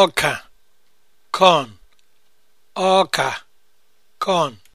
ọka corn ọka corn